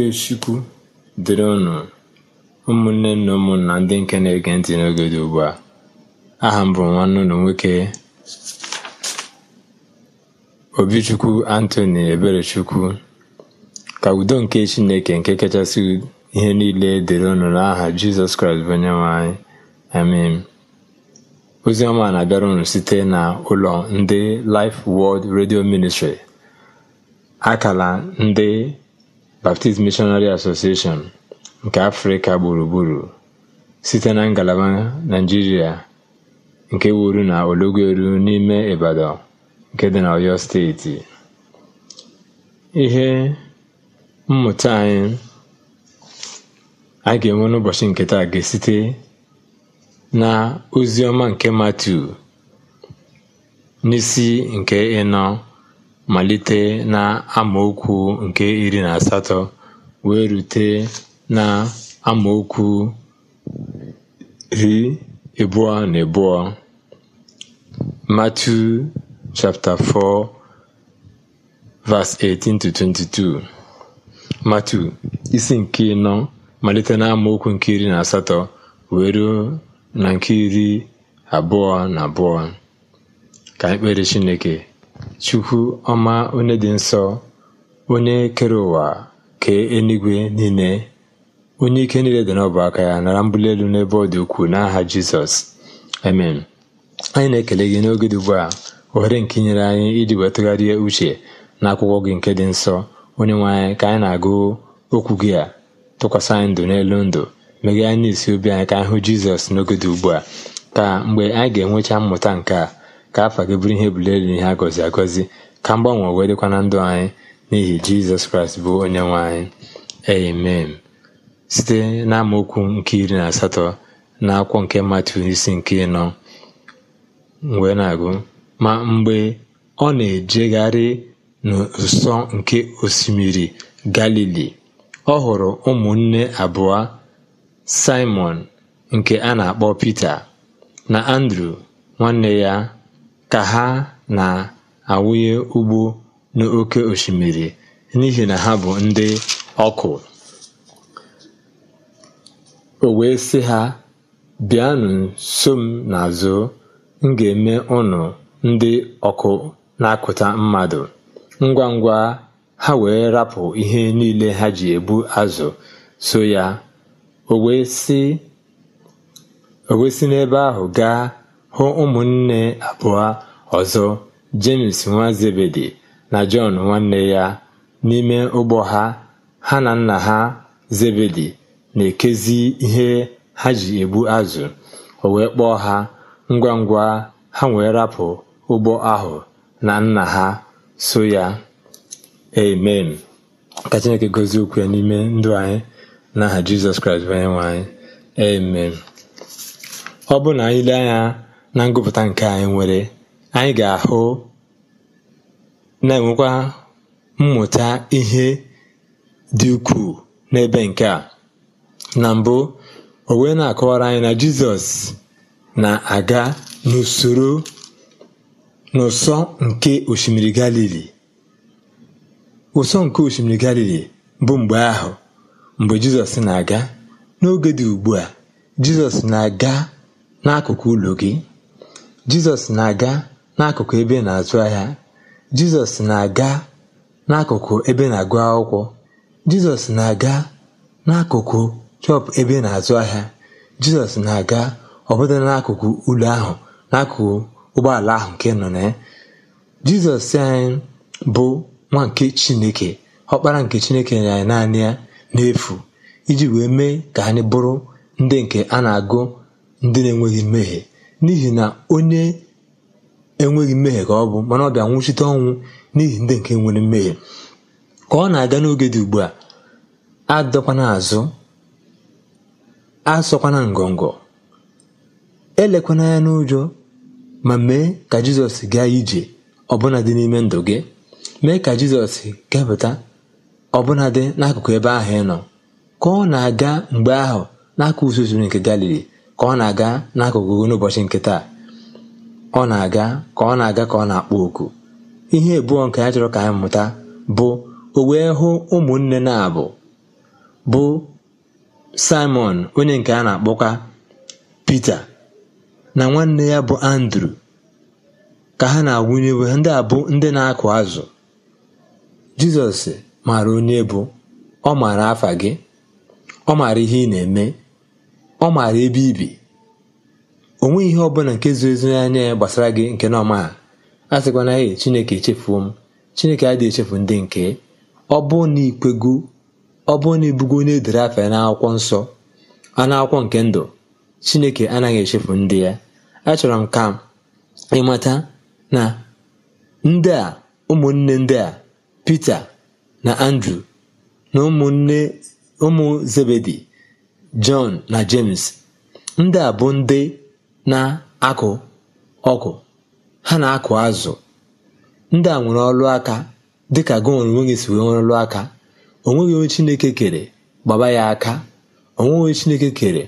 Ikechukwu dịrị unu ụmụnne na ụmụnna ndị nke na-ege ntị n'oge dị ugbu a aha m bụ nwanne unu nwoke Obichukwu Anthony Eberechukwu ka udo nke Chineke nke kachasị ihe niile dịrị unu n'aha Jizọs Kraịst bụ onye nwe anyị ozi ọma na-abịara unu site na ụlọ ndị Life World Radio Ministry akala ndị Baptist Missionary Association nke Afrịka gburugburu site na ngalaba Naịjirịa nke wuru na Ologweru n'ime Ibadan nke dị na Oyo Steeti. Ihe mmụta anyị a ga-enwe n'ụbọchị nke taa ga-esite na Oziọma nke Matu n'isi nke ịnọ malite na amaokwu nke iri na asatọ wee rute amaokwu ri abụọ na abụọ Matthew chapter 4 18 22 Matthew isi nke ịnọ malite amaokwu nke iri na asatọ wee ruo na nke iri abụọ na abụọ ka ekpere kpere Chineke Chukwu ọma onye dị nsọ onye kere ụwa kee eluigwe niile onye ike niile dị n'ọbụ aka ya nara mbuli elu n'ebe ọ dị ukwuu n'aha Jizọs amen anyị na-ekele gị n'oge dị ugbu a ohere nke inyere anyị iji wee uche na akwụkwọ gị nke dị nsọ onye nwe anyị ka anyị na-agụ okwu gị a tụkwasị anyị ndụ n'elu ndụ meghe anyị n'isi obi anyị ka anyị hụ Jizọs n'oge dị ugbu a ka mgbe anyị ga-enwecha mmụta nke a ka afa gị bụrụ ihe bulie elu ihe a gọzi agọzi ka mgbanwe wee dịkwa na ndụ anyị n'ihi jizọs kraịst bụ onye nwe anyị amen site n'amaokwu nke iri na asatọ na akwụkwọ nke matu isi nke ịnọ wee na-agụ ma mgbe ọ na-ejegharị n'ụsọ nke osimiri galili ọ hụrụ ụmụnne abụọ simon nke a na-akpọ pita na andrew nwanne ya ka ha na-awụnye ugbo n'oke osimiri n'ihi na ha bụ ndị ọkụ. O wee sị ha, “Bịanụ so m na-azụ m ga-eme ụnụ ndị ọkụ na-akụta mmadụ.” Ngwa ngwa ha wee rapụ ihe niile ha ji ebu azụ so ya. O wee si n'ebe ahụ gaa hụ ụmụnne abụọ ọzọ james nwa Zebedi na Jọn nwanne ya n'ime ụgbọ ha ha na nna ha Zebedi na-ekezi ihe ha ji egbu azụ o wee kpọọ ha ngwa ngwa ha wee rapụ ụgbọ ahụ na nna ha so ya amen ka Chineke gozie okwu n'ime ndụ anyị n'aha Jizọs Kraịst bụ onye nwe anyị amen ọ bụ na anyị na ngụpụta nke anyị nwere anyị ga-ahụ na-enwekwa mmụta ihe dị ukwuu n'ebe nke a na mbụ o wee na-akọwara anyị na Jizọs na-aga n'usoro n'ụsọ nke osimiri Galili ụsọ nke osimiri Galili bụ mgbe ahụ mgbe Jizọs na-aga n'oge dị ugbu a Jizọs na-aga n'akụkụ ụlọ gị jizọs na-aga n'akụkụ ebe na-azụ ahịa jizọs na-aga n'akụkụ ebe na-agụ akwụkwọ jizọs na-aga n'akụkụ chọpụ ebe na-azụ ahịa jizọs na-aga ọbụda n'akụkụ ụlọ ahụ n'akụkụ ụgbọala ahụ nke nọ na ya jizọs anyị e, bụ nwa nke chineke ọkpara nke chineke nyere anyị naanị ya n'efu iji wee mee ka anyị bụrụ ndị nke a na-agụ ndị na-enweghị mmehie n'ihi na onye enweghị mmehie ka ọ bụ mana ọ bịa nwụchite ọnwụ n'ihi ndị nke nwere mmehie ka ọ na-aga n'oge dị ugbu a adọkwana azụ asọkwana ngọngọ elekwana ya n'ụjọ ma mee ka jizọs gaa ije ọbụnadị n'ime ndụ gị mee ka jizọs kepụta ọbụna dị n'akụkụ ebe ahụ ị nọ ka ọ na-aga mgbe ahụ n'aka usoro nke galili ka ọ na-aga n'akụkụ n'ụbọchị nke taa ọ na-aga ka ọ na-aga ka ọ na-akpọ oku ihe abụọ nke ya chọrọ ka anyị mụta bụ o wee hụ ụmụnne na-abụ bụ Simon onye nke a na-akpọkwa Pita na nwanne ya bụ Andrew ka ha na-awụnye iwe ndị a bụ ndị na-akụ azụ Jizọs maara onye bụ ọ maara afa gị ọ maara ihe ị na-eme ọ maara ebe ibi onwe nweghị ihe ọbụla nke zuru ezu anya ya gbasara gị nke na ọma a sịkwana ya chineke echefuo m chineke adịghị echefu ndị nke ọ bụ na ikwego ọ bụ na ibugo na edere afa ya n'akwụkwọ nsọ anụ akwụkwọ nke ndụ chineke anaghị echefu ndị ya achọrọ m ka ịmata na ndị a ụmụnne ndị a Pita na Andrew na ụmụ zebedi john na James ndị a bụ ndị na-akụ ọgụ ha na-akụ azụ ndị a nwere ọrụ aka dịka gị onwe gị si nwere ọrụ aka onweghị onye Chineke kere gbaba ya aka onweghị onye Chineke kere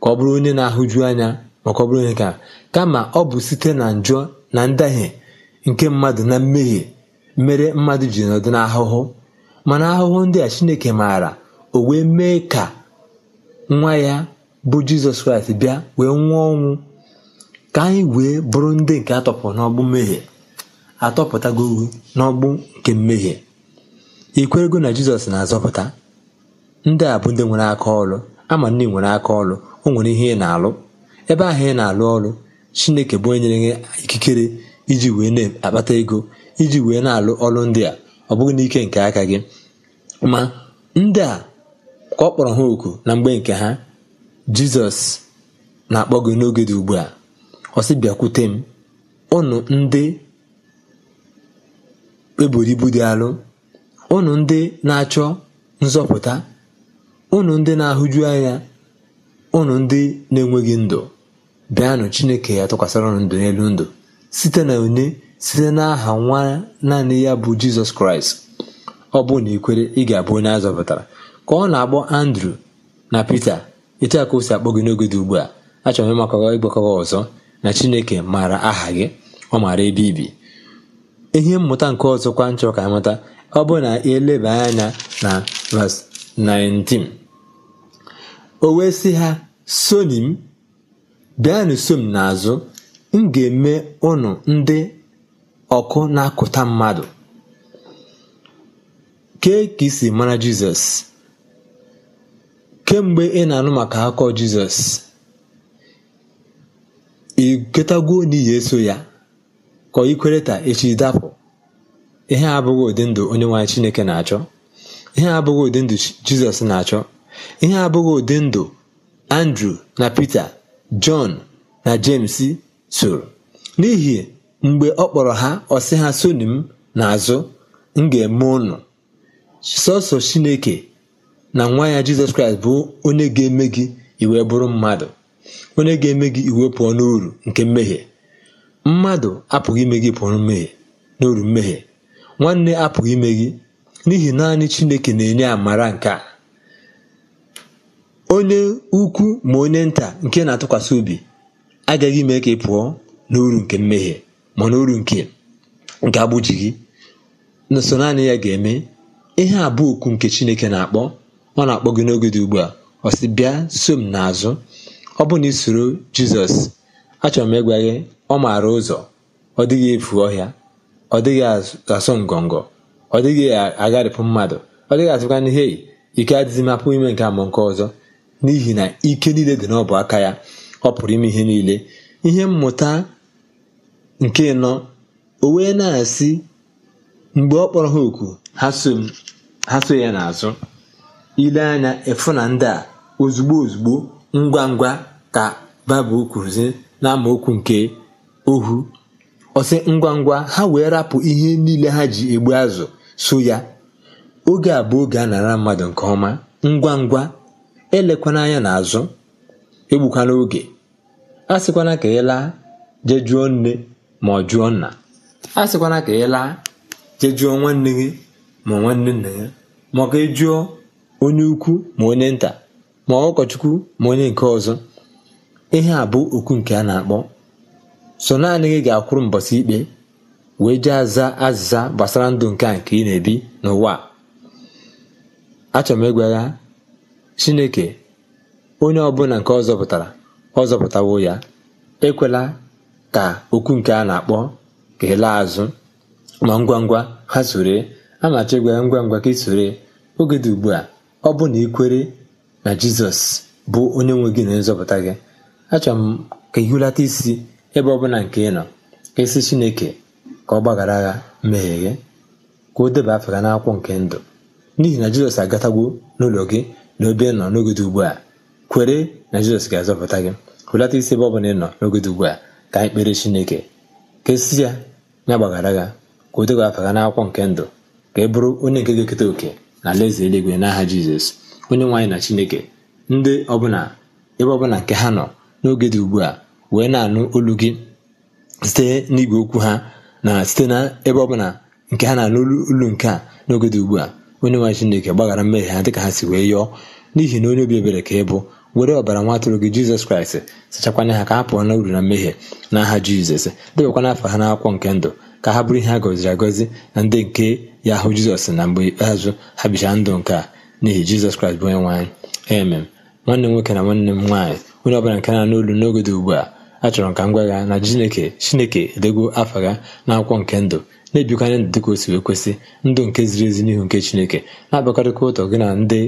ka ọ bụrụ onye na-ahụju anya maka ọ bụrụ onye ka kama ọ bụ site na njọ na ndahie nke mmadụ na mmehie mere mmadụ ji nọdụ n'ahụhụ mana ahụhụ ndị a Chineke maara o wee mee ka nwa ya bụ jizọs kraịst bịa wee nwụọ ọnwụ ka anyị wee bụrụ ndị nke atọpụrụ n'ọgbụ mmehie atọpụtago n'ọgbụ nke mmehie ikwerego na jizọs na-azọpụta ndị a bụ ndị nwere aka ọrụ ama ndị nwere aka ọrụ o nwere ihe ị na-alụ ebe ahụ ị na-alụ ọrụ chineke bụ onye nyere ikikere iji wee na-akpata ego iji wee na-alụ ọrụ ndị a ọ bụghị n'ike nke aka gị ma ndị a ka ọ kpọrọ ha oku na mgbe nke ha jizọs na-akpọ gị n'oge dị ugbu a ọ sị bịakwute m ụnụ ndị eburu ibu dị alụ ụnụ ndị na-achọ nzọpụta ụnụ ndị na-ahụju anya ụnụ ndị na-enweghị ndụ bịanụ chineke ya tụkwasịra ụnụ ndụ n'elu ndụ site na onye site n'aha nwa naanị ya bụ jizọs kraịst ọ bụ na ikwere ị ga-abụ onye azọpụtara ka ọ na-akpọ andrew na pete etu a ka o si akpọ gị n'oge dị ugbu a achọrọ m ịmakọrọ ịgbakọrọ ọzọ na chineke maara aha gị ọ maara ebe ibi ihe mmụta nke ọzọ kwa chọrọ ka amata ọ bụ na eleba anya na verse 19 o wee sị ha soni m bịanụ so m n'azụ m ga-eme ụnụ ndị ọkụ na-akụta mmadụ kee ka isi mara jizọs kemgbe ị na-anụ maka akọ Jizọs ị n'ihi eso ya ka ikwere ta echi dapụ ihe a abụghị ụdị ndụ onye nwanyị Chineke na-achọ ihe abụghị ụdị ndụ Jizọs na-achọ ihe abụghị ụdị ndụ Andrew na Peter John na James soro n'ihi mgbe ọ kpọrọ ha ọ ha soni m azụ m ga-eme ụnụ sọsọ Chineke na nwa ya jizọs kraịst bụ onye ga-eme gị iwe bụrụ mmadụ onye ga-eme gị iwe pụọ n'uru nke mmehie mmadụ apụghị ime gị pụọ mmehie n'uru mmehie nwanne apụghị ime gị n'ihi naanị chineke na-enye amara nke a onye ukwu ma onye nta nke na-atụkwasị obi agaghị ime ka ị pụọ n'uru nke mmehie ma n'uru nke nke agbụji gị nso naanị ya ga-eme ihe abụọ okwu nke chineke na-akpọ ọ na-akpọ gị n'oge dị ugbu a ọ sị bịa so m n'azụ ọ bụrụ na ị soro jizọs achọrọ m ịgwa gị ọ maara ụzọ ọ dịghị efu ọhịa ọ dịghị asụ ngọngọ ọ dịghị agharịpụ mmadụ ọ dịghị atụkwa n'ihe ike adịghị mapụ ime nke amụ nke ọzọ n'ihi na ike niile dị n'ọbụ aka ya ọ pụrụ ime ihe niile ihe mmụta nke nọ o wee na-asị mgbe ọ kpọrọ ha oku ha so ya n'azụ ile anya ịfụ na ndị a ozugbo ozugbo ngwa ngwa ka baịbụl kwuruzi okwu nke ohu ọsị ngwa ngwa ha wee rapụ ihe niile ha ji egbu azụ so ya oge a bụ oge a nara mmadụ nke ọma ngwa ngwa elekwana anya n'azụ egbukwana oge a sịkwana ka ị laa nne ma ọ jụọ nna a ka ị laa nwanne gị ma nwanne nna ya onye ukwu ma onye nta ma ụkọchukwu ma onye nke ọzọ ihe a bụ okwu nke a na-akpọ so naanị gị ga-akwụrụ mbọsị ikpe wee jee aza azịza gbasara ndụ nke a nke ị na-ebi n'ụwa achọrọ m ịgwa ya chineke onye ọbụla nke ọ zọpụtara ọ zọpụtawo ya ekwela ka okwu nke a na-akpọ ka ị laa azụ ma ngwa ngwa ha sore a machi gwa ya ngwa ngwa ka ị sore oge dị ugbu a ọ bụ na ị kwere na jizọs bụ onye nwe gị na nzọpụta gị achọrọ m ka ị hụlata isi ebe ọbụla nke ị nọ ka esi chineke ka ọ gbaghara agha mmehie gị ka o deba afọ ga nke ndụ n'ihi na jizọs agatagwo n'ụlọ gị na obe nọ dị ugbu a kwere na jizọs ga-azọpụta gị hụlata isi ebe ọbụla ị nọ n'ogede ugbu a ka anyị kpere chineke ka esi ya ya gbaghara agha ka o deba afọ ga n'akwụkwọ nke ndụ ka ị bụrụ onye nke ga-eketa oke na alaeze eluigwe n'aha jizọs onye nwe na chineke ndị ọbụla ebe ọbụla nke ha nọ n'oge dị ugbu a wee na-anụ olu gị site n'igwe okwu ha na site na ebe ọbụla nke ha na-anụ olu nke a n'oge dị ugbu a onye nwe chineke gbaghara mmehie ha dịka ha si wee yọọ n'ihi na onye obi ebere ka ị bụ were ọbara nwa atụrụ gị jizọs kraịst sachakwanye ha ka ha pụọ na uru na mmehie na n'aha jizọs debakwana afọ ha n'akwụkwọ nke ndụ ka ha bụrụ ihe a gọziri agọzi na ndị nke ya hụ jizọs na mgbe ikpeazụ ha bichara ndụ nke a n'ihi jizọs kraịst bụ onye nwaanyị emem nwanne m nwoke na nwanne m nwaanyị onye ọbụla nke na n'olu n'oge dị ugbu a achọrọ ka m gwagha na chineke chineke edego afa gha na akwụkwọ nke ndụ na-ebikanye ndụ dịka o wee kwesị ndụ nke ziri ezi n'ihu nke chineke na-abakọrịta ụtọ gị na ndị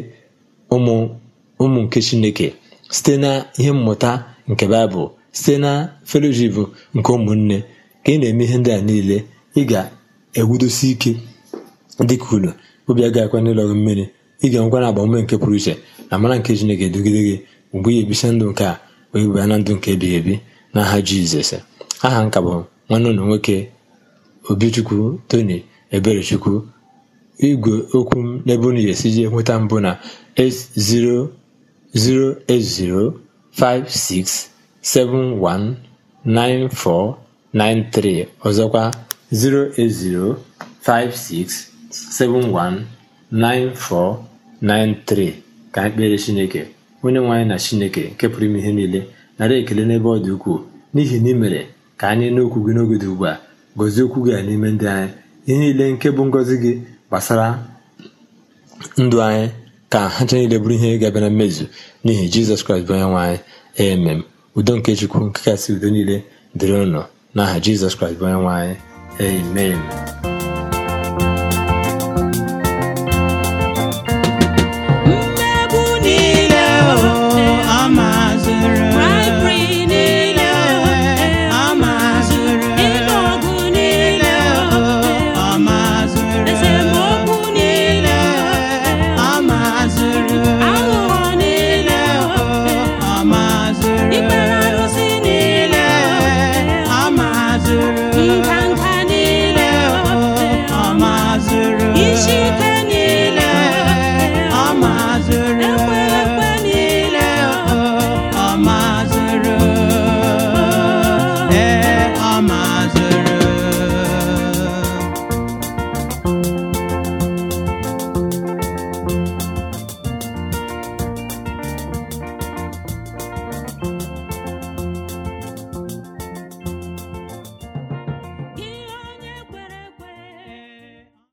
ụmụ nke chineke site na ihe mmụta nke baịbụl site na feloshipu nke ụmụnne ka ị na-eme ihe ndị a niile ị ga-ewudosi ike dịka unu obi agaghị akwa n'ụlọ gị mmiri ị ga-enwekwa na agbamume nke pụrụ iche na mara nke Chineke edugide gị mgbe ị ebisa ndụ nke a wee baa na ndụ nke ebighị ebi n'aha Jizọs aha nka bụ nwanne ụlọ nwoke Obichukwu Tony Eberechukwu igwe okwu m n'ebe unu ga-esi jee nweta mbụ na 080567194 93 ọzọkwa 08056719493 ka anyị kpere Chineke onye nwe anyị na Chineke nke pụrụ ime ihe niile nara ekele n'ebe ọ dị ukwuu n'ihi na imere mere ka anyị n'okwu gị n'oge dị ugbu a gozie okwu gị n'ime ndị anyị ihe niile nke bụ ngọzi gị gbasara ndụ anyị ka ha nche niile bụrụ ihe ga-abịa na mmezu n'ihi Jizọs Kraịst bụ onye nwe anyị udo nke Chukwu nke kasị udo niile dịrị ụnụ n'aha Jizọs Kraịst bụ onye nwe anyị amen